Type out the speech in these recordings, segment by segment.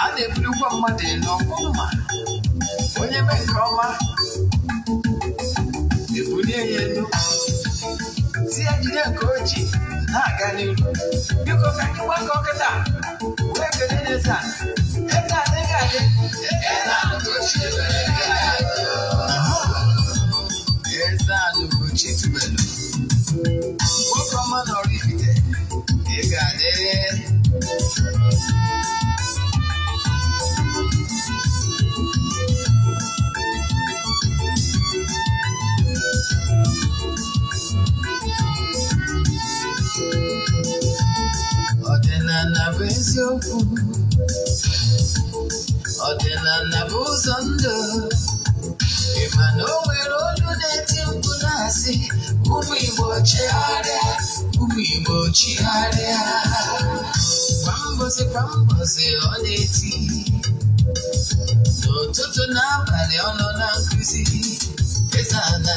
a na-ebulukwa ebuli mmadụ elu ọkwa mma onye mee nke ọma ebulie ya elu tinyegide nke o ji na-aga n'ihu biko ka anyị gbakọ kịta wee kele n'eze eze adịghị adị eze anụgochi tubelu nwoke ọma nọrọ ibite ị ga-adị nsogbu ọ dị ị ma not o nwere olu na-eti mkpu na-asị ụmụ Igbo chigharịa ụmụ Igbo chigharịa kwa mbosi kwa mbosi ọ na-eti n'ụtụtụ na abalị ọ nọ na abali o na nkuzi eze ana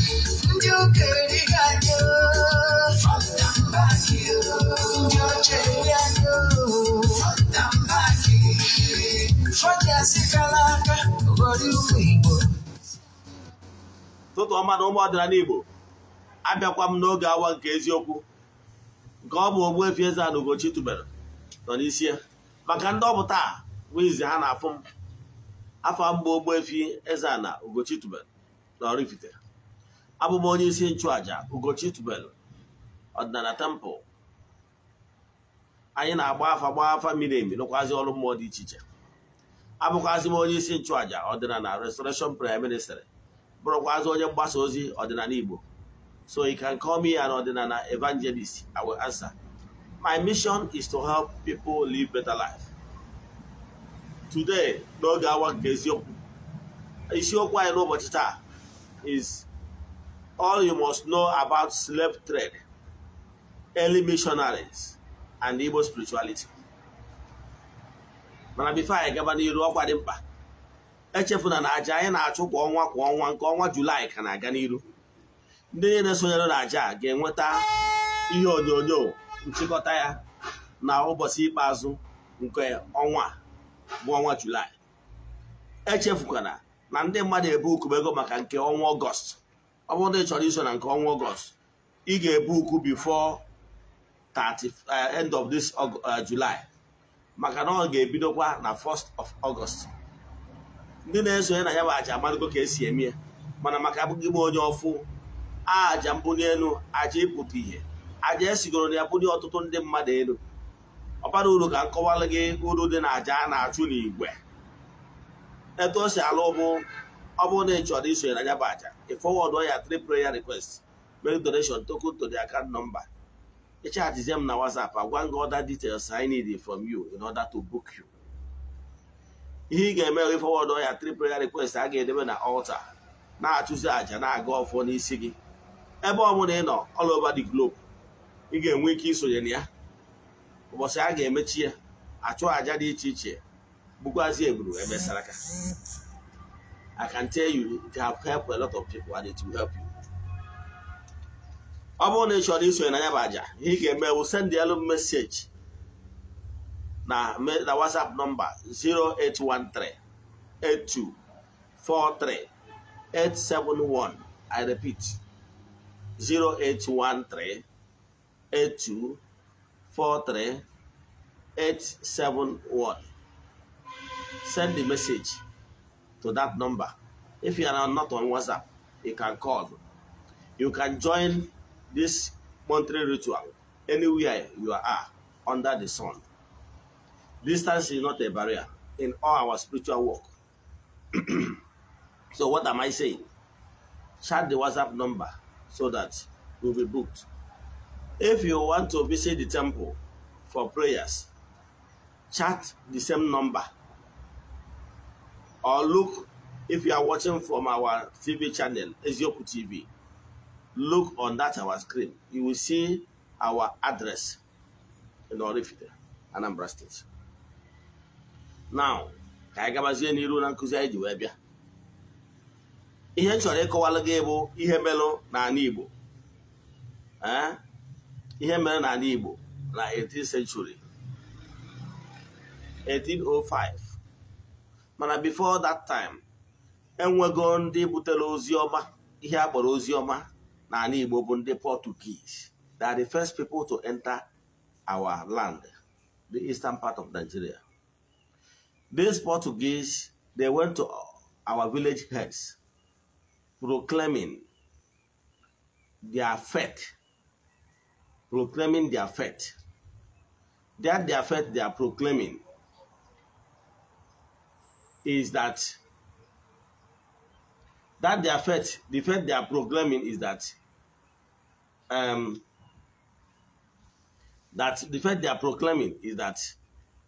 ndị ndị aka ụmụ Igbo ụtụtụ ọma na ụmụ ọdịnala Igbo abịakwa m n'oge awa nke eziokwu nke ọ bụ Ogbuefi na ana Ugochi nọ n'isi ya maka ndị ọ taa ha na-afụ m afọ mbụ eze na Ugochi tubere na abụ m onye isi nchụaja Ugochi Tubelu ọdịnala temple anyị na-agba afa gba afa miri emi ọrụ mmụọ dị iche iche abụkwazi m onye isi nchụaja ọdịnala restoration prayer ministry bụrụkwazi onye mgbasa ozi ọdịnala Igbo so you can call me an ọdịnala evangelist I will answer my mission is to help people live better life today n'oge awa nke isiokwu anyị n'ụbọchị taa is all you must know about slave trade, early missionaries, and Igbo spirituality. mana bifo anyị gaba n'iru ọkwa dị mkpa echefuna na aja anyị na-achụ kwa ọnwa kwa ọnwa nke ọnwa julaị ka na-aga n'iru ndị niile na-esonyere na aja ga-enweta ihe onyonyo nchịkọta ya na ụbọchị ikpeazụ nke ọnwa bụ ọnwa julaị echefukwana na ndị mmadụ ebe ukwu ego maka nke ọnwa ọgọst ọ bụrụ na ị chọrọ iso na nke ọnwa ọgọst ị ga-ebu ukwu before 30 eh, end of this eh, July maka na ọ ga-ebidokwa na 1st of August ndị na-esonye na ya bụ aja amadigo ka esi eme ya mana maka abụghị m onye ọfụ aja mbuli aja ịpụta ihe aja esigoro na ya bụli ọtụtụ ndị mmadụ elu ọ bara uru ka nkọwalụ gị uru dị na aja a na-achụ n'igwe etu o si alụ bụ ọ bụrụ na ị chọrọ isonye na nyaba aja ị fọwọdụ ya three prayer request make donation token to the account number ị chahajizie m na WhatsApp agwa gị other details I need from you in order to book you ihe ị ga-eme ị fọwọdụ ya three prayer request a ga-edebe na altar na-achụzi aja na-aga ọfọ n'isi gị ebe ọ ị nọ all over the globe ị ga-enwe ike isonye na ya ụbọchị a ga-emechi ya achụ aja dị iche iche bụkwazie eburu emesara ka I can tell you it have helped a lot of people and it will help you. ọ bụrụ na ị chọrọ isonye na ya bụ aja ihe ị ga-eme wụ send elu message na na WhatsApp nọmba 08138243871 I repeat 08138243871 send the message to that number. If you are not on WhatsApp, you can call. You can join this monthly ritual anywhere you are under the sun. Distance is not a barrier in all our spiritual work. so what am I saying? Chat the WhatsApp number so that you'll be booked. If you want to visit the temple for prayers, chat the same number or look if you are watching from our TV channel, Ezioku TV, look on that our screen. You will see our address in Orifite, Anambra State. Now, ka anyị gabazie n'iru na nkuzi anyị ji wee bịa. Ihe m chọrọ ịkọwalụ gị bụ ihe na n'ala Igbo. Eh? Ihe mere n'ala Igbo na 18th century, 1805. mana before that time enwego ndị butere ozi ọma ihe a ozi ọma Igbo bụ ndị Portuguese they are the first people to enter our land the eastern part of Nigeria these Portuguese they went to our village heads proclaiming their faith proclaiming their faith that their faith they are proclaiming is that that the faith, the fact they are proclaiming is that um, that the faith they are proclaiming is that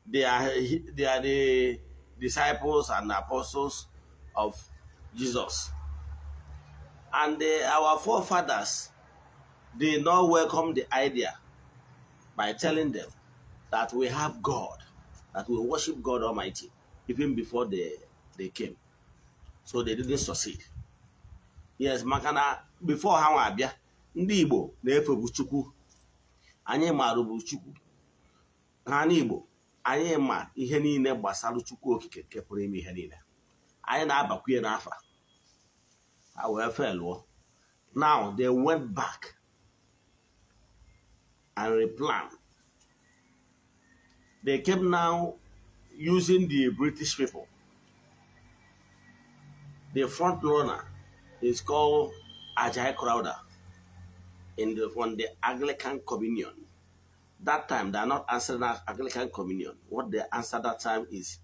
they are they are the disciples and apostles of Jesus. And our forefathers did not welcome the idea by telling them that we have God, that we worship God Almighty. even before they, they came. So they didn't succeed. Yes, makana before ha abia ndi Igbo na-efebu Chukwu anyị marụbu Chukwu ha igbo anyị ma ihe niile gbasara Chukwu okike nke pụrụ ime ihe niile anyị na-abakwa n'afa ha efe felụọ now they went back and replanned they came now using the British people. The front runner is called Ajay Crowder in the, from the Anglican Communion. That time they are not answering Anglican Communion. What they answer that time is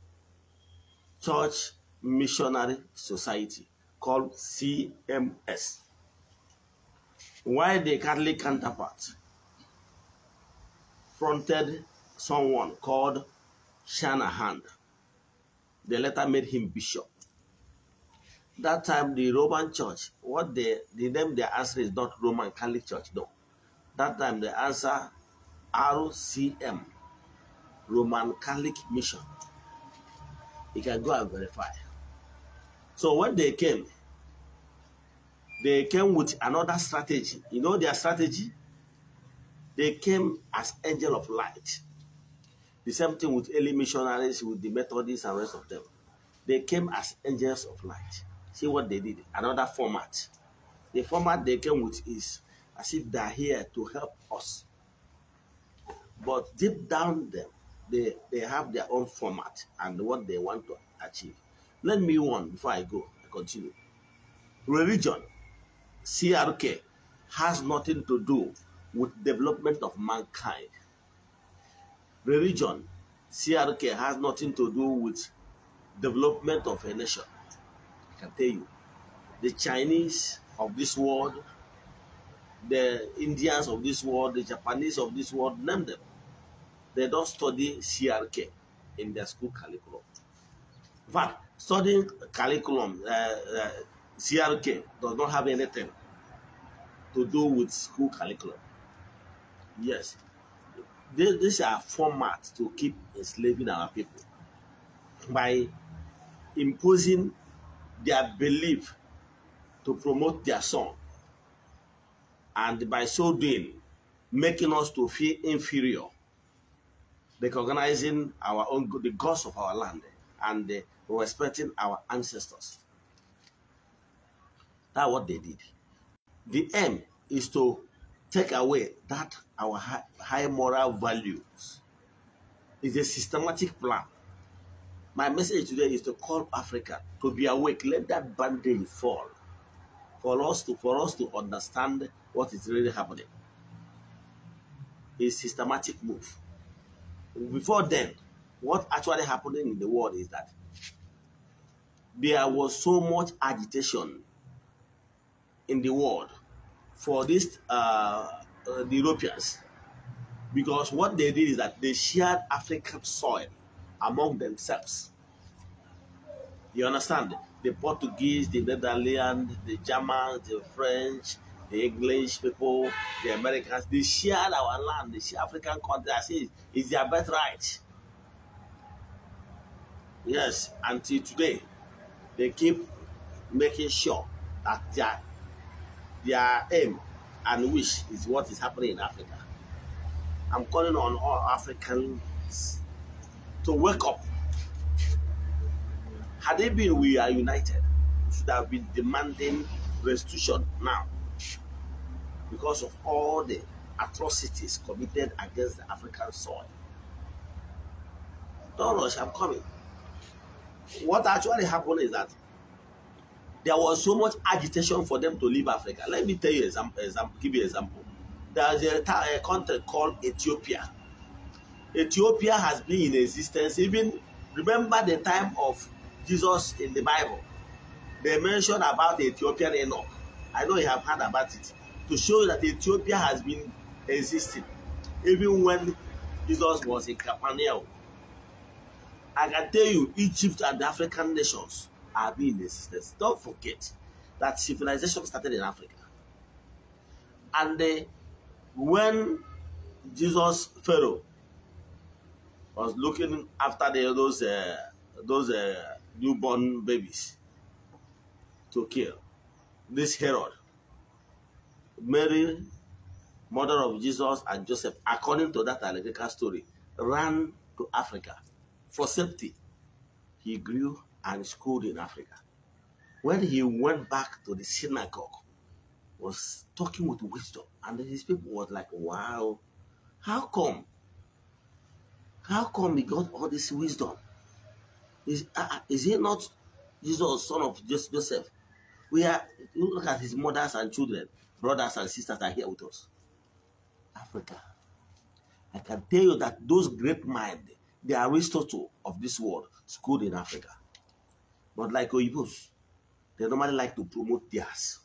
Church Missionary Society called CMS. Why the Catholic counterpart fronted someone called Shanahan. They later made him bishop. That time, the Roman church, what they, the name they answer is not Roman Catholic Church, no. That time, they answer RCM, Roman Catholic Mission. You can go and verify. So when they came, they came with another strategy. You know their strategy? They came as angel of light. The same thing with early missionaries, with the Methodists and rest of them. They came as angels of light. See what they did. Another format. The format they came with is as if they're here to help us. But deep down them, they, they have their own format and what they want to achieve. Let me one before I go. I continue. Religion, CRK, has nothing to do with development of mankind religion, CRK has nothing to do with development of a nation. I can tell you. The Chinese of this world, the Indians of this world, the Japanese of this world, name them. They don't study CRK in their school curriculum. But studying curriculum, uh, uh, CRK, does not have anything to do with school curriculum. Yes, This, these are formats to keep enslaving our people by imposing their belief to promote their son and by so doing making us to feel inferior recognizing our own the gods of our land and uh, respecting our ancestors that's what they did the aim is to take away that our high, high moral values. It's a systematic plan. My message today is to call Africa to be awake. Let that bandage fall for us to for us to understand what is really happening. It's systematic move. Before then, what actually happening in the world is that there was so much agitation in the world for these uh, uh, the Europeans because what they did is that they shared African soil among themselves. You understand? The Portuguese, the Netherlands, the Germans, the French, the English people, the Americans, they shared our land, they African country. I say it's their birthright. Yes, until today, they keep making sure that their their aim and wish is what is happening in Africa. I'm calling on all Africans to wake up. Had they been, we are united, should have been demanding restitution now because of all the atrocities committed against the African soil. Don't rush, I'm coming. What actually happened is that there was so much agitation for them to leave Africa. Let me tell you example. example give you example. There's a, a country called Ethiopia. Ethiopia has been in existence even remember the time of Jesus in the Bible. They mention about Ethiopian Enoch. I know you have heard about it to show that Ethiopia has been existing even when Jesus was in Capernaum. I can tell you, Egypt and African nations have been in existence. Don't forget that civilization started in Africa. And when Jesus Pharaoh was looking after the, those uh, those uh, newborn babies to kill, this Herod, Mary, mother of Jesus and Joseph, according to that allegorical story, ran to Africa for safety. He grew and schooled in Africa. When he went back to the synagogue, was talking with wisdom, and his people was like, "Wow, how come? How come he got all this wisdom? Is uh, uh is he not Jesus, son of Joseph? We are look at his mothers and children, brothers and sisters are here with us. Africa. I can tell you that those great minds, the Aristotle of this world, schooled in Africa. But like Oyibos, they normally like to promote theirs.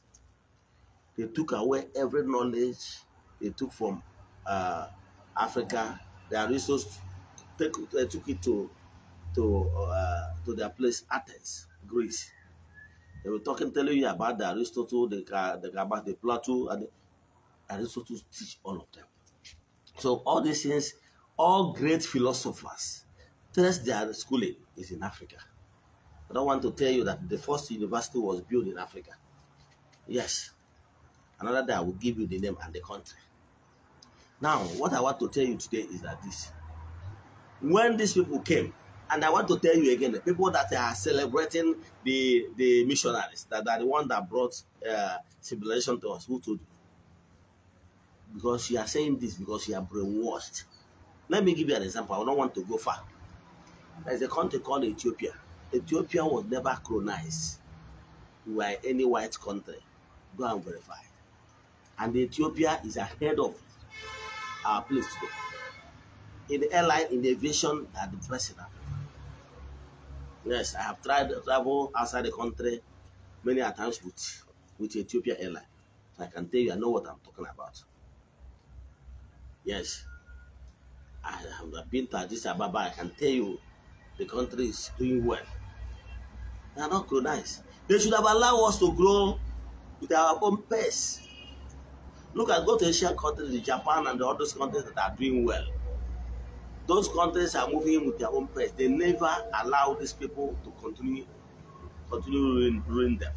They took away every knowledge they took from uh, Africa. Their resources they uh, took it to to uh, to their place Athens, Greece. They were talking, telling you about the Aristotle, the the about the Plato, and the, Aristotle teach all of them. So all these things, all great philosophers, test their schooling is in Africa. I don't want to tell you that the first university was built in Africa. Yes. Another day I will give you the name and the country. Now, what I want to tell you today is that this. When these people came, and I want to tell you again, the people that are celebrating the, the missionaries, that are the one that brought uh, civilization to us, who told you? Because you are saying this because you are brainwashed. Let me give you an example. I don't want to go far. There's a country called Ethiopia. Ethiopia was never colonized by any white country. Go and verify. And Ethiopia is ahead of our place today. In the airline, in the aviation, at the president. Yes, I have tried to travel outside the country many times with, with Ethiopia Airline. I can tell you, I know what I'm talking about. Yes, I have been to Addis Ababa. I can tell you the country is doing well. They are not colonized. They should have allowed us to grow with our own pace. Look at go to Asian countries, Japan and the other countries that are doing well. Those countries are moving with their own pace. They never allow these people to continue continue ruin, ruin them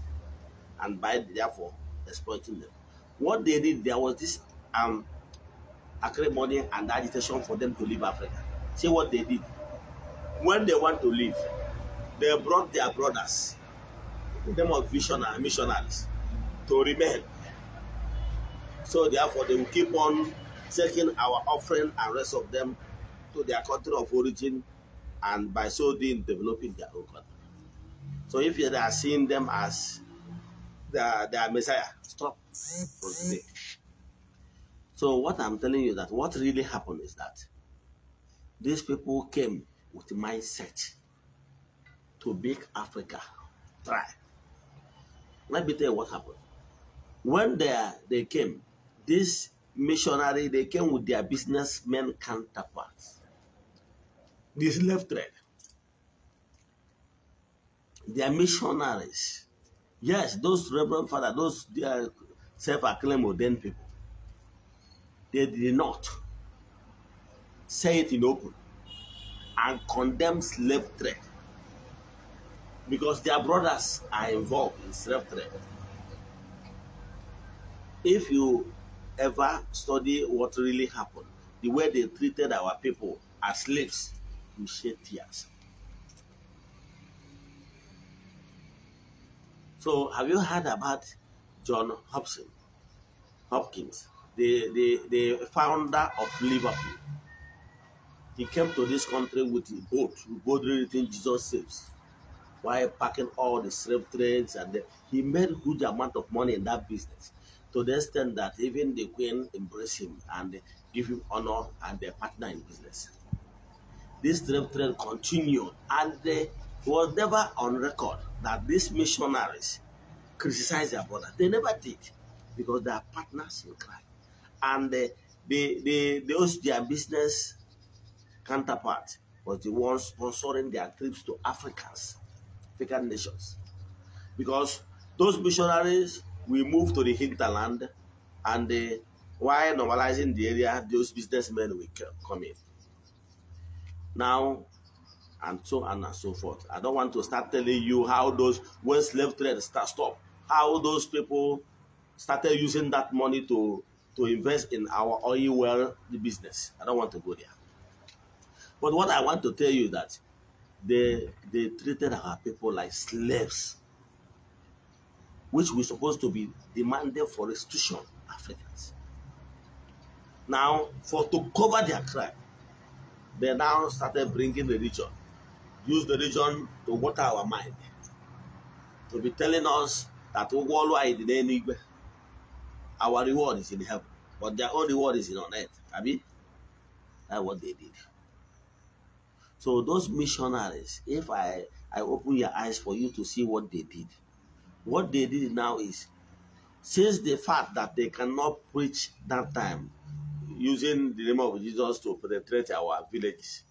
and by therefore exploiting them. What they did, there was this um acrimony and agitation for them to leave Africa. See what they did. When they want to leave, They brought their brothers, them of visionary missionaries, to remain. So therefore, they will keep on taking our offering and rest of them to their country of origin, and by so doing, developing their own country. So if you are seeing them as their, their Messiah, stop for today. So what I'm telling you that what really happened is that these people came with mindset to make Africa try. Let me tell you what happened. When they, they came, this missionary, they came with their businessmen counterparts. This left thread. Their missionaries. Yes, those Reverend Father, those they are self-acclaimed ordained people. They did not say it in open and condemn slave trade because their brothers are involved in slave trade. If you ever study what really happened, the way they treated our people as slaves, you shed tears. So, have you heard about John Hobson, Hopkins, the, the, the founder of Liverpool? He came to this country with a boat, boldly written Jesus saves while packing all the slave trades. And the, he made huge amount of money in that business to the extent that even the queen embraced him and give him honor and their partner in business. This slave trade continued and they, it was never on record that these missionaries criticized their brother. They never did because they are partners in crime. And the the the those their business counterpart was the one sponsoring their trips to Africans African nations. Because those missionaries will move to the hinterland and they, while normalizing the area, those businessmen will come in. Now, and so on and so forth. I don't want to start telling you how those, when slave trade start stop, how those people started using that money to, to invest in our oil well business. I don't want to go there. But what I want to tell you that they they treated our people like slaves, which we supposed to be demanded for restitution, Africans. Now, for to cover their crime, they now started bringing religion, use the religion to water our mind, to be telling us that our reward is in heaven, but their only reward is in on earth. I mean, that's what they did. So those missionaries, if I, I open your eyes for you to see what they did, what they did now is, since the fact that they cannot preach that time, using the name of Jesus to penetrate our villages,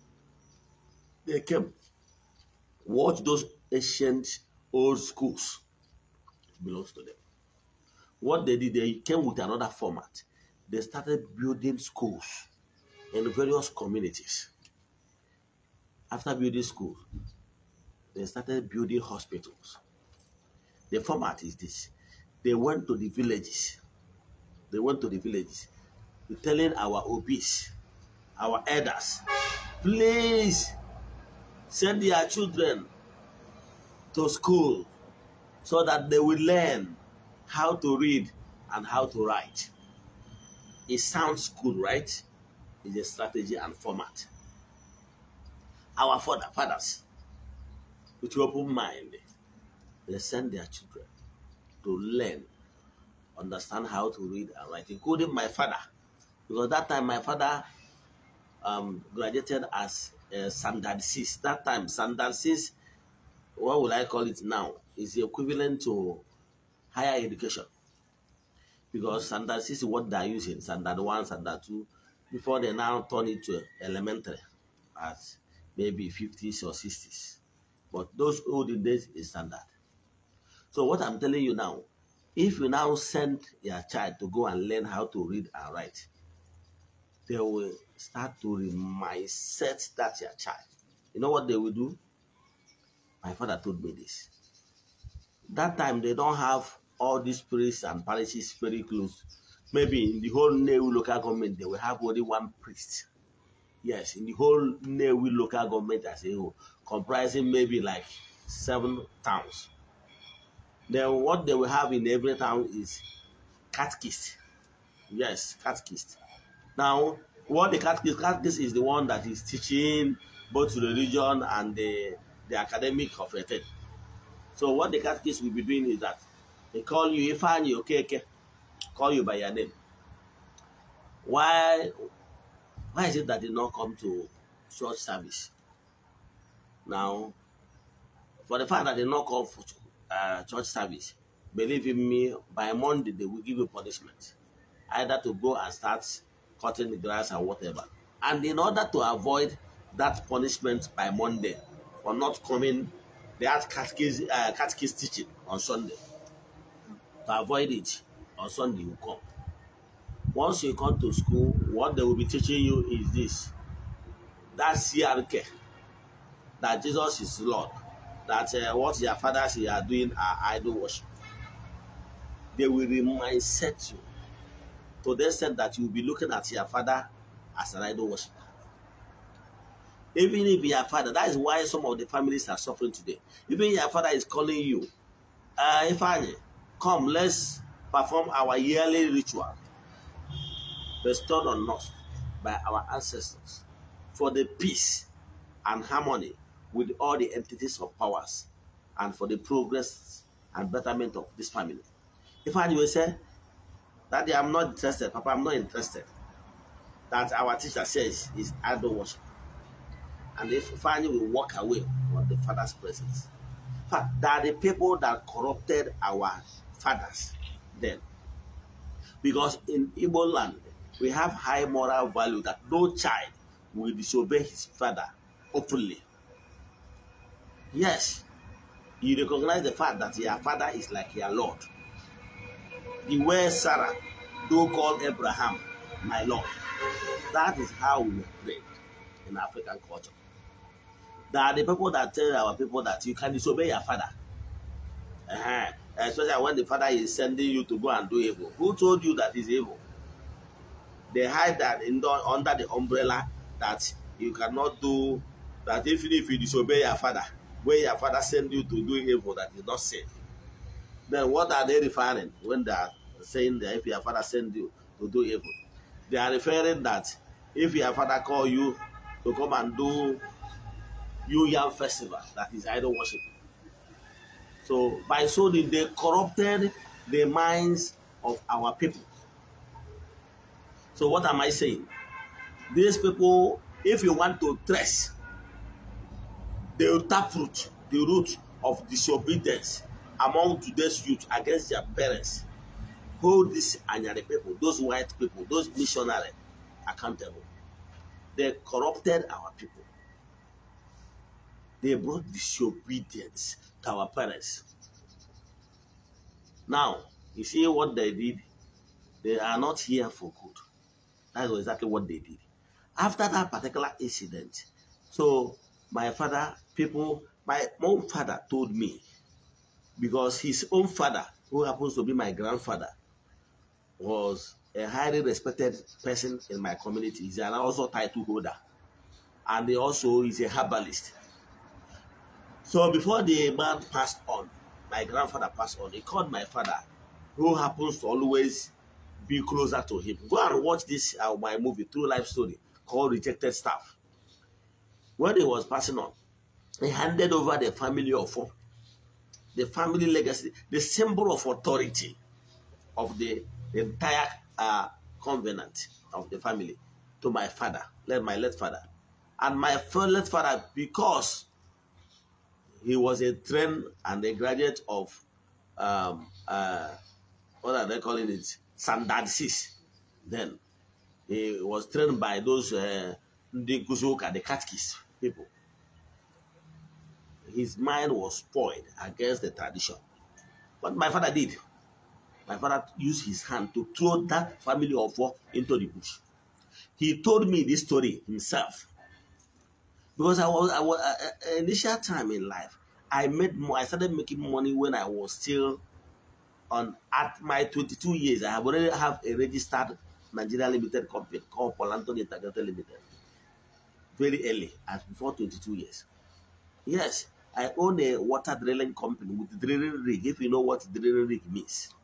they came. Watch those ancient old schools. belongs to them. What they did, they came with another format. They started building schools in various communities after building schools, they started building hospitals. The format is this. They went to the villages. They went to the villages. They're telling our OBs, our elders, please send your children to school so that they will learn how to read and how to write. It sounds good, right? It's a strategy and format. our father, fathers with open mind, they send their children to learn, understand how to read and write, including my father. Because that time my father um, graduated as uh, standard six. That time, standard six, what would I call it now? Is the equivalent to higher education. Because standard six is what they're using, standard one, standard two, before they now turn it to elementary as maybe 50s or 60s. But those olden days is standard. So what I'm telling you now, if you now send your child to go and learn how to read and write, they will start to mindset that your child. You know what they will do? My father told me this. That time they don't have all these priests and parishes very close. Maybe in the whole new local government, they will have only one priest Yes, in the whole Newi local government as a whole, comprising maybe like seven towns. Then what they will have in every town is catechist. Yes, catechist. Now, what the catechist, catechist is the one that is teaching both the religion and the, the academic of a thing. So what the catechist will be doing is that they call you Ifan, you okay, okay, call you by your name. Why why is it that they not come to church service? Now, for the fact that they not come for uh, church service, believe in me, by Monday they will give you punishment. Either to go and start cutting the grass or whatever. And in order to avoid that punishment by Monday for not coming, they had catechist, uh, teaching on Sunday. To avoid it, on Sunday you come once you come to school, what they will be teaching you is this that CRK, that Jesus is Lord, that uh, what your fathers are doing are idol worship. They will set you to the extent that you will be looking at your father as an idol worshiper. Even if your father, that is why some of the families are suffering today. Even your father is calling you, uh, I come, let's perform our yearly ritual bestowed on us by our ancestors for the peace and harmony with all the entities of powers and for the progress and betterment of this family. If I will say, that I'm not interested, Papa, I'm not interested. That our teacher says is idol worship. And if finally we walk away from the father's presence. But there are the people that corrupted our fathers then. Because in Igbo land, We have high moral value that no child will disobey his father openly. Yes, you recognize the fact that your father is like your Lord. The way Sarah, do call Abraham, my Lord. That is how we pray in African culture. There are the people that tell our people that you can disobey your father. Uh -huh. Especially when the father is sending you to go and do evil. Who told you that is evil? they hide that in the, under the umbrella that you cannot do that even if you disobey your father wey your father send you to do evil that is not safe then what are they referring when they are saying that if your father send you to do evil they are referring that if your father call you to come and do New Yam festival that is idol worship so by so they they corrupted the minds of our people So what am I saying? These people, if you want to trace the taproot, the root of disobedience among today's youth against their parents, hold these Anyari people, those white people, those missionaries accountable. They corrupted our people. They brought disobedience to our parents. Now, you see what they did? They are not here for good. That's exactly what they did. After that particular incident, so my father, people, my own father told me, because his own father, who happens to be my grandfather, was a highly respected person in my community. He's an also title holder, and he also is a herbalist. So before the man passed on, my grandfather passed on, he called my father, who happens to always be closer to Him. Go and watch this uh, my movie, True Life Story, called Rejected Staff. When he was passing on, he handed over the family of four, the family legacy, the symbol of authority of the, entire uh, covenant of the family to my father, let my late father. And my late father, because he was a trained and a graduate of um, uh, what are they calling it? Sandaxis. Then he was trained by those uh, the nkuzi the Katkis people. His mind was spoiled against the tradition. What my father did, my father used his hand to throw that family of four into the bush. He told me this story himself. Because I was, I was uh, uh initial time in life, I made more, I started making money when I was still on at my 22 years, I have already have a registered Nigeria Limited company called Polanton Integrated Limited. Very early, as before 22 years. Yes, I own a water drilling company with drilling rig. If you know what drilling rig means,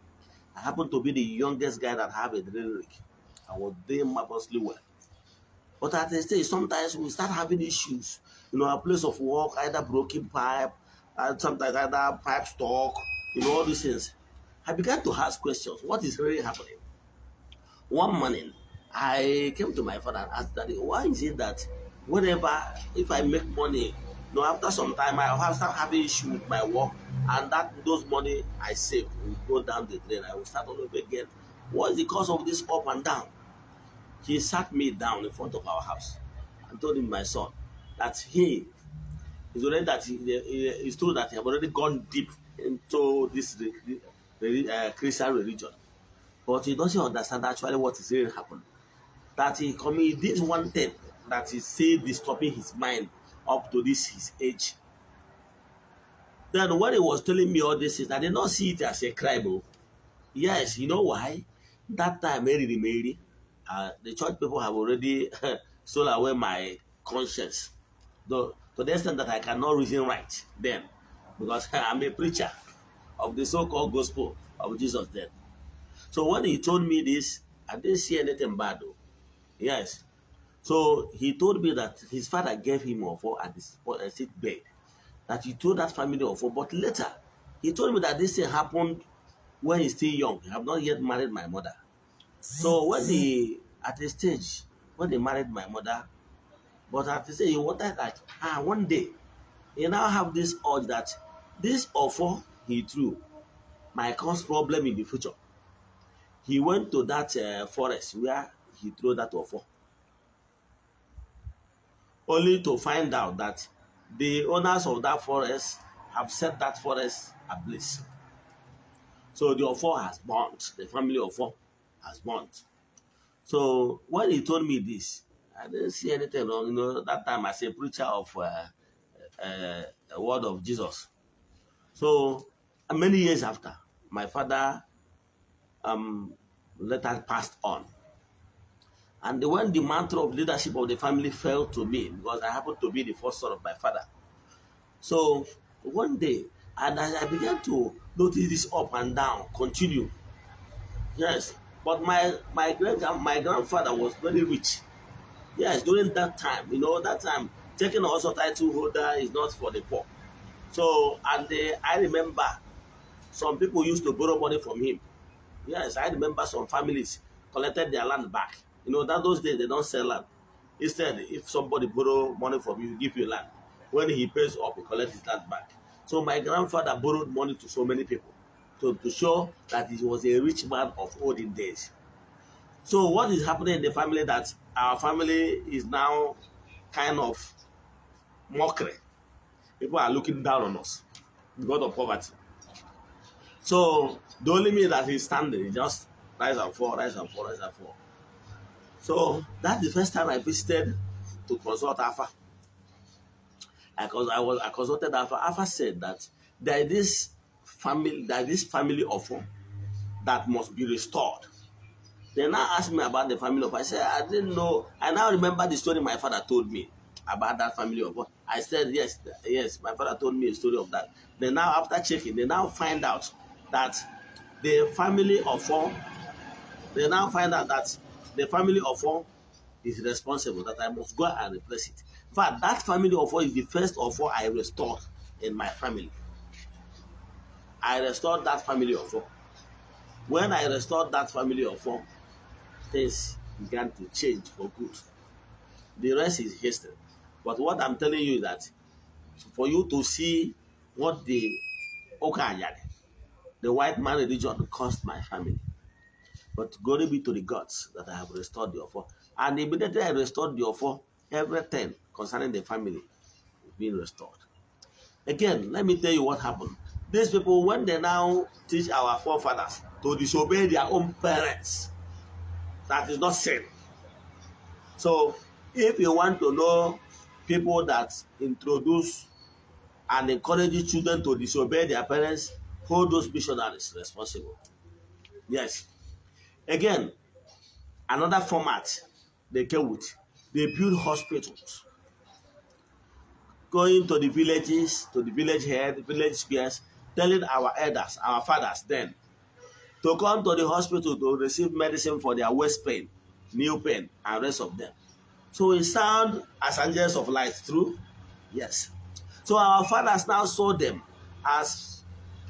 I happen to be the youngest guy that have a drilling rig. I was doing marvelously well. But at the stage, sometimes we start having issues. You know, a place of work, either broken pipe, and uh, sometimes either pipe stock, you know, all these things. I began to ask questions. What is really happening? One morning, I came to my father and asked daddy, why is it that whenever, if I make money, you know, after some time, I have start having issue with my work, and that those money I save will go down the drain. I will start all over again. What is the cause of this up and down? He sat me down in front of our house and told him, my son, that he is already that he, he, he's told that he have already gone deep into this uh, Christian religion. But he doesn't understand actually what is really happening. That he committed this one thing that is still disturbing his mind up to this his age. Then when he was telling me all this, I did not see it as a crime. Oh. Yes, you know why? That time, Mary Mary, uh, the church people have already sold away my conscience. Though, to the extent that I cannot reason right then, because I'm a preacher of the so-called gospel of Jesus death. So when he told me this, I didn't see anything bad though. Yes. So he told me that his father gave him offer at the sick bed. That he told that family offer. But later, he told me that this thing happened when he's still young. I have not yet married my mother. So when he, at the stage, when he married my mother, but after say he wanted that, ah, one day, he now have this urge that this offer he threw might cause problem in the future. He went to that uh, forest where he threw that offer, only to find out that the owners of that forest have set that forest ablaze. So the offer has burnt, the family offer has burnt. So when he told me this, I didn't see anything wrong. You know, that time as a preacher of uh, uh, a uh, word of Jesus. So many years after, my father um, later passed on. And when the mantle of leadership of the family fell to me, because I happened to be the first son of my father. So one day, and as I began to notice this up and down, continue. Yes, but my my great my grandfather was very rich. Yes, during that time, you know, that time taking also title holder is not for the poor. So and I remember some people used to borrow money from him. Yes, I remember some families collected their land back. You know, that those days they don't sell land. Instead, if somebody borrow money from you, give you land. When he pays up, he collects his land back. So my grandfather borrowed money to so many people to, to show that he was a rich man of olden days. So what is happening in the family that our family is now kind of mockery. People are looking down on us because of poverty. So the only means that he's standing, he just rise and fall, rise and fall, rise and fall. So that's the first time I visited to consult Alpha. I, cons I, was, I consulted Alpha. Alpha said that there is this family, there is this family offer that must be restored. They now asked me about the family of I said, I didn't know. I now remember the story my father told me about that family offer. I said, yes, yes, my father told me a story of that. They now, after checking, they now find out that the family of four, they now find out that the family of four is responsible, that I must go and replace it. In fact, that family of four is the first of four I restored in my family. I restored that family of four. When I restored that family of four, things began to change for good. The rest is history. But what I'm telling you is that for you to see what the Okanyari The white man religion cost my family. But glory be to the gods that I have restored the offer And immediately I restored the offer everything concerning the family being restored. Again, let me tell you what happened. These people, when they now teach our forefathers to disobey their own parents, that is not sin. So, if you want to know people that introduce and encourage children to disobey their parents, Hold those missionaries responsible. Yes. Again, another format they came with. They built hospitals. Going to the villages, to the village head, village spears, telling our elders, our fathers then, to come to the hospital to receive medicine for their waist pain, knee pain, and rest of them. So it sound as angels of light, true? Yes. So our fathers now saw them as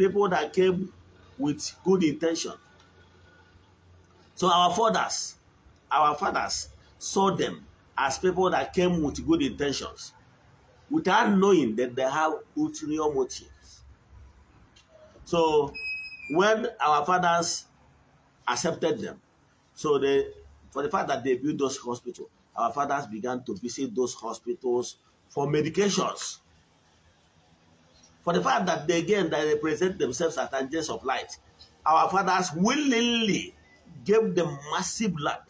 people that came with good intention. So our fathers, our fathers saw them as people that came with good intentions, without knowing that they have ulterior motives. So when our fathers accepted them, so they, for the fact that they built those hospitals, our fathers began to visit those hospitals for medications for the fact that they again that they present themselves as angels of light. Our fathers willingly gave them massive land.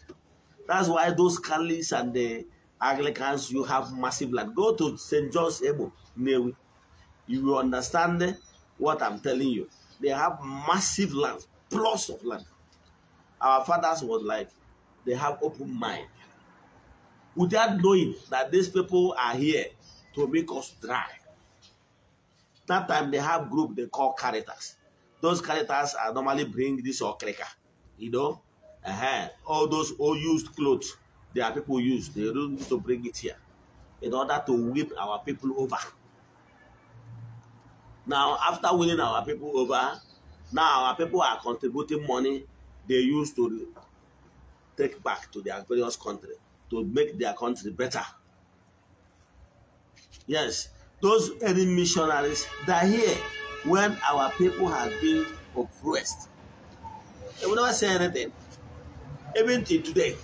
That's why those Catholics and the Anglicans, you have massive land. Go to St. John's Ebo, Newi. You will understand what I'm telling you. They have massive land, plots of land. Our fathers was like, they have open mind. Without knowing that these people are here to make us dry. that time they have group they call characters. Those characters are normally bring this or cracker, you know. Uh -huh. All those old used clothes, there are people use. They don't need to bring it here in order to whip our people over. Now, after winning our people over, now our people are contributing money they use to take back to their various country to make their country better. Yes, those early missionaries that here when our people had been oppressed. They will never say anything. Even till today.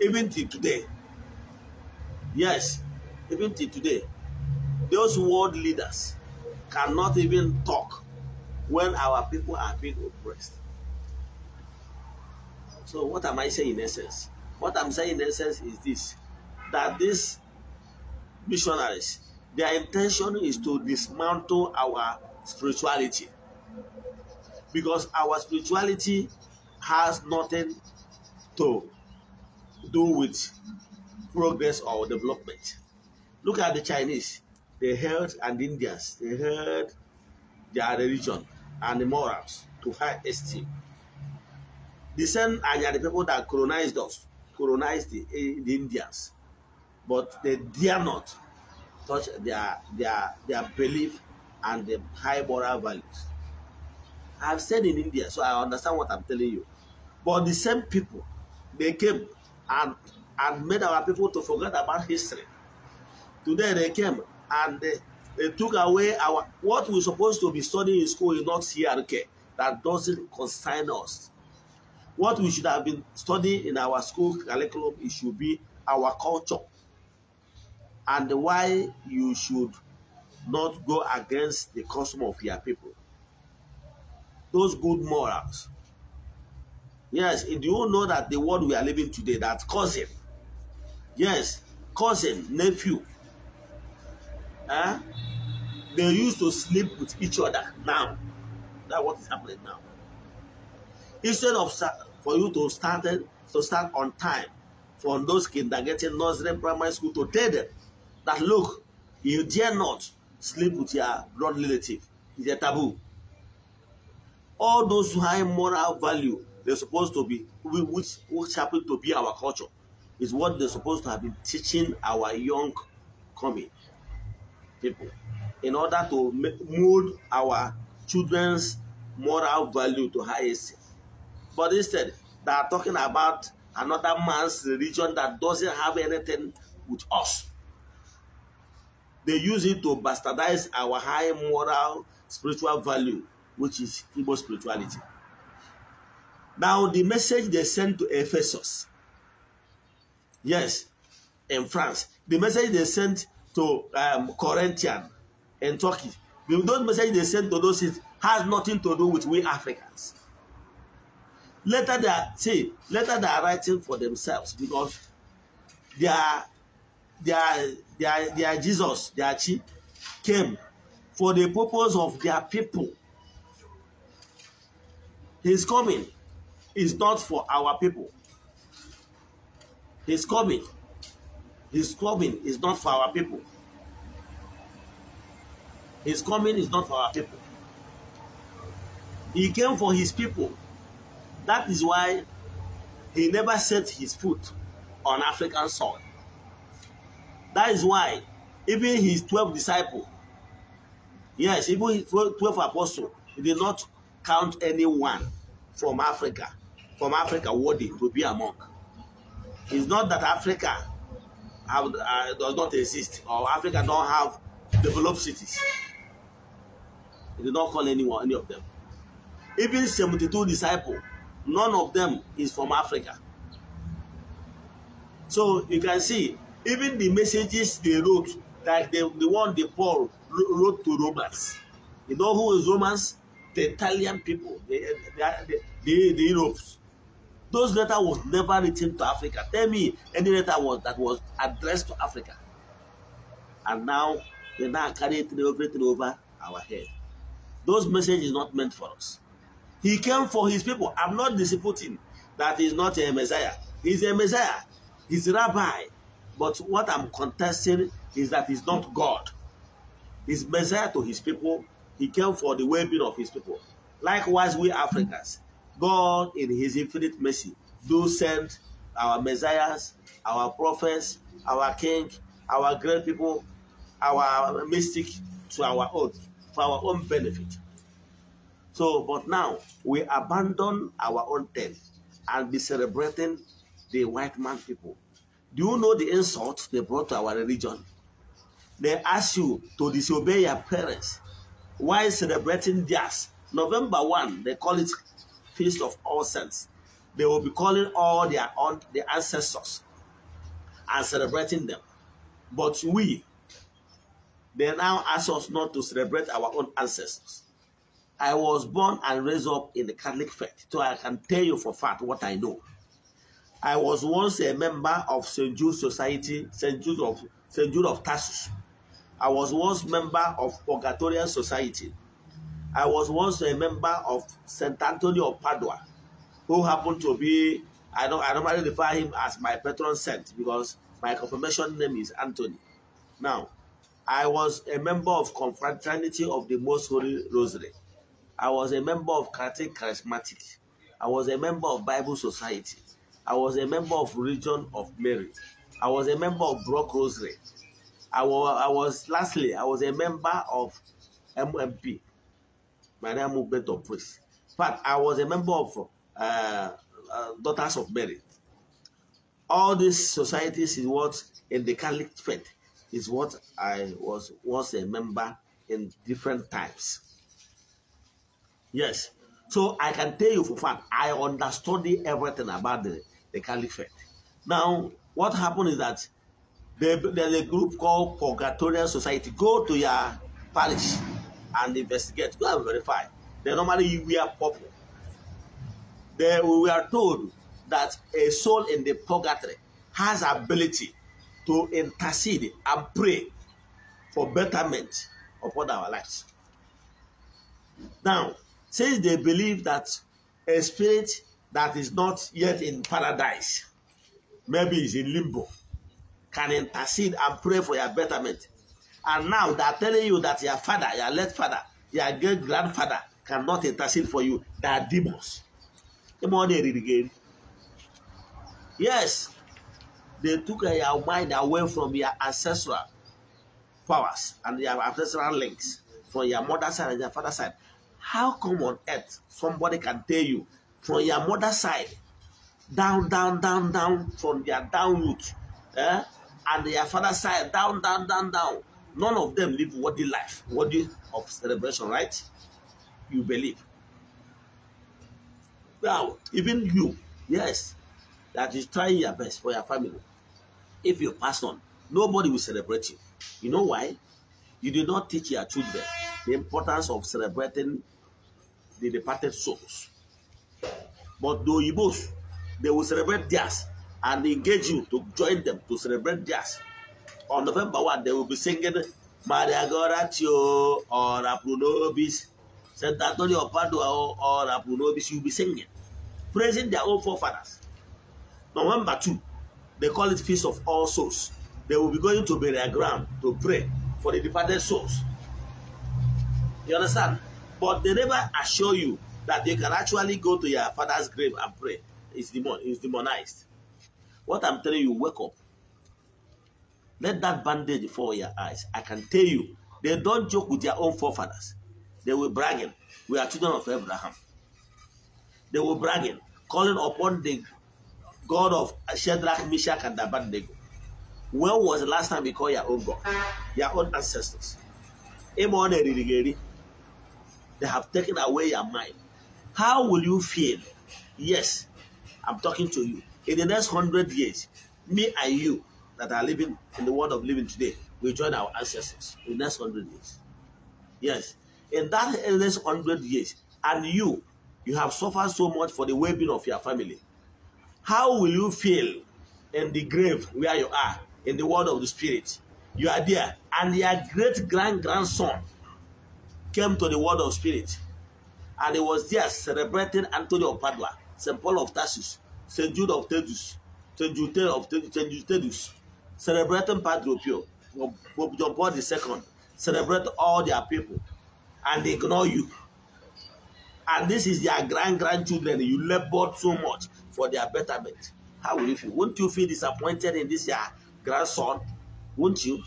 Even till today. Yes, even till today. Those world leaders cannot even talk when our people are being oppressed. So what am I saying in essence? What I'm saying in essence is this, that this missionaries, their intention is to dismantle our spirituality because our spirituality has nothing to do with progress or development. Look at the Chinese, they held and Indians, they held their religion and the morals to high esteem. The same are the people that colonized us, colonized the, eh, the Indians but they dare not touch their their their belief and the high moral values. I've said in India, so I understand what I'm telling you. But the same people, they came and and made our people to forget about history. Today they came and they, they took away our what we're supposed to be studying in school is not CRK. That doesn't concern us. What we should have been studying in our school curriculum, it should be our culture and why you should not go against the custom of your people. Those good morals. Yes, do you know that the world we are living today, that cousin, yes, cousin, nephew, eh? they used to sleep with each other now. That's what is happening now. Instead of for you to start to start on time from those kindergarten, nursery, primary school to tell them that look, you dare not sleep with your blood relative. It's a taboo. All those high moral value they supposed to be, which which happen to be our culture, is what they supposed to have been teaching our young coming people in order to mold our children's moral value to high But instead, they are talking about another man's religion that doesn't have anything with us They use it to bastardize our high moral spiritual value, which is Igbo spirituality. Now, the message they sent to Ephesus, yes, in France, the message they sent to um, Corinthian in Turkey, the, those messages they sent to those cities has nothing to do with we Africans. Later they are, see, later they are writing for themselves because they are their, their Jesus, their chief, came for the purpose of their people. His coming is not for our people. His coming, his coming is not for our people. His coming is not for our people. He came for his people. That is why he never set his foot on African soil. That is why even his 12 disciples, yes, even his 12 apostles, he did not count anyone from Africa, from Africa worthy to be a monk. It's not that Africa have, uh, does not exist or Africa don't have developed cities. He did not call anyone, any of them. Even 72 disciples, none of them is from Africa. So you can see even the messages they wrote, like the, the one the Paul wrote to Romans. You know who is Romans? The Italian people, the, the, the, the Europeans. Those letter was never written to Africa. Tell me any letter was that was addressed to Africa. And now they now carry it everything over our head. Those message is not meant for us. He came for his people. I'm not disputing that he's not a Messiah. He's a Messiah. He's a rabbi. But what I'm contesting is that he's not God. He's Messiah to his people. He came for the well-being of his people. Likewise, we Africans, God in his infinite mercy do send our messiahs, our prophets, our king, our great people, our mystic to our own, for our own benefit. So, but now we abandon our own tent and be celebrating the white man people do you know the insult they brought to our religion? They ask you to disobey your parents while celebrating theirs. November 1, they call it Feast of All Saints. They will be calling all their, all their ancestors and celebrating them. But we, they now ask us not to celebrate our own ancestors. I was born and raised up in the Catholic faith, so I can tell you for fact what I know. I was once a member of St. Jude Society, St. Jude of St. Jude of Tarsus. I was once member of Purgatorial Society. I was once a member of St. Anthony of Padua, who happened to be, I don't, I normally refer him as my patron saint because my confirmation name is Anthony. Now, I was a member of Confraternity of the Most Holy Rosary. I was a member of Catholic Charismatic. I was a member of Bible Society. I was a member of Religion of Mary. I was a member of Brock Rosary. I was, I was lastly, I was a member of MMP, name is of Praise. But I was a member of uh, uh, Daughters of Mary. All these societies is what in the Catholic faith is what I was was a member in different times. Yes, so I can tell you for fact I understood everything about the the caliphate. Now, what happened is that there's a group called Purgatorial Society. Go to your parish and investigate. Go and verify. They normally wear purple. They, were are told that a soul in the purgatory has ability to intercede and pray for betterment all our lives. Now, since they believe that a spirit that is not yet in paradise, maybe is in limbo, can intercede and pray for your betterment. And now they are telling you that your father, your late father, your great grandfather cannot intercede for you. They are demons. Come on, they read again. Yes, they took your mind away from your ancestral powers and your ancestral links from your mother's side and your father's side. How come on earth somebody can tell you from your mother side down down down down from their down root eh? and their father side down down down down none of them live worthy life worthy of celebration right you believe now even you yes that is trying your best for your family if you pass on nobody will celebrate you you know why you do not teach your children the importance of celebrating the departed souls but the Oyibos, they will celebrate theirs and engage you to join them to celebrate theirs. On November 1, they will be singing Maria Goratio or Apunobis, St. Antonio of Padua or Apunobis. You'll be singing, praising their own forefathers. November 2, they call it Feast of All Souls. They will be going to burial ground to pray for the departed souls. You understand? But they never assure you that they can actually go to your father's grave and pray. It's, demon, it's demonized. What I'm telling you, wake up. Let that bandage fall your eyes. I can tell you, they don't joke with their own forefathers. They were bragging. We are children of Abraham. They were bragging, calling upon the God of Shadrach, Meshach, and Abednego. When was the last time you called your own God, your own ancestors? They have taken away your mind. How will you feel? Yes, I'm talking to you. In the next hundred years, me and you that are living in the world of living today, we join our ancestors in the next hundred years. Yes, in that endless hundred years, and you, you have suffered so much for the well-being of your family. How will you feel in the grave where you are in the world of the spirit? You are there, and your great grand grandson came to the world of spirit and he was there celebrating Antonio of Padua, St. Paul of Tarsus, St. Jude of Tedus, St. Jude of Tedus, celebrating Padre Pio, John Paul II, celebrate all their people, and they ignore you. And this is their grand-grandchildren. You labored so much for their betterment. How will you feel? Won't you feel disappointed in this your grandson? Won't you?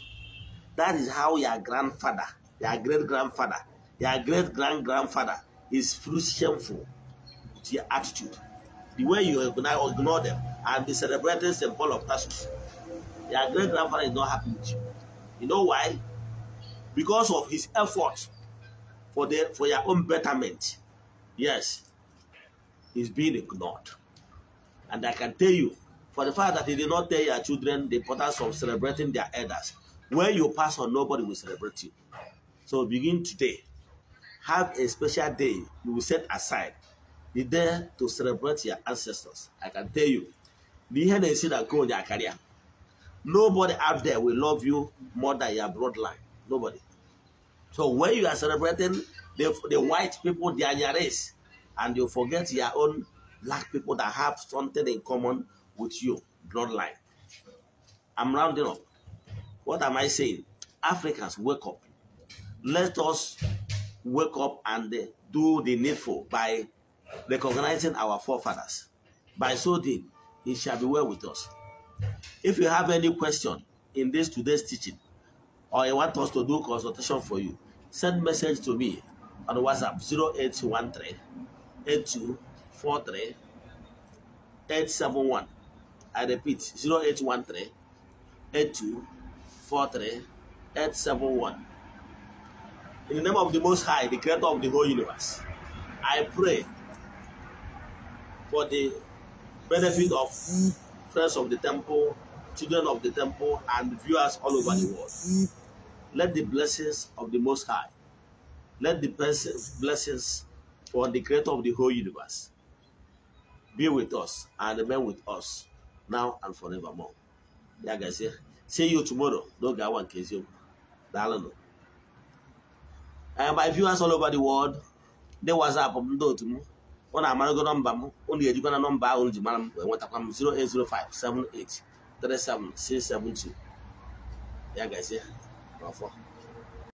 That is how your grandfather, your great-grandfather, your great-grand-grandfather is through shameful to your attitude. The way you ignore them and be celebrating St. Paul of Tarsus. Your great grandfather is not happy with you. You know why? Because of his effort for their for your own betterment. Yes, he's being ignored. And I can tell you, for the fact that he did not tell your children the importance of celebrating their elders, when you pass on, nobody will celebrate you. So begin today have a special day you will set aside. the there to celebrate your ancestors. I can tell you, the NNC that go on their career, nobody out there will love you more than your bloodline. Nobody. So when you are celebrating the, the white people, their race, and you forget your own black people that have something in common with you, bloodline. I'm rounding up. What am I saying? Africans, wake up. Let us wake up and do the needful by recognizing our forefathers. By so doing, it shall be well with us. If you have any question in this today's teaching, or you want us to do consultation for you, send message to me on WhatsApp 0813 8243 871. I repeat 0813 8243 871. In the name of the Most High, the creator of the whole universe, I pray for the benefit of friends of the temple, children of the temple, and viewers all over the world. Let the blessings of the Most High, let the blessings for the creator of the whole universe be with us and remain with us now and forevermore. Ya gazie, see you tomorrow. N'oge awa nke eziokwu. Daalụ and my viewers all over the world ndị WhatsApp m um, ndị otu m ọ na-amarago nọmba m um. unu ejikwa na nọmba ahụ ji mara m enwetakwa m 08057837672 ya gazie n'ọfọ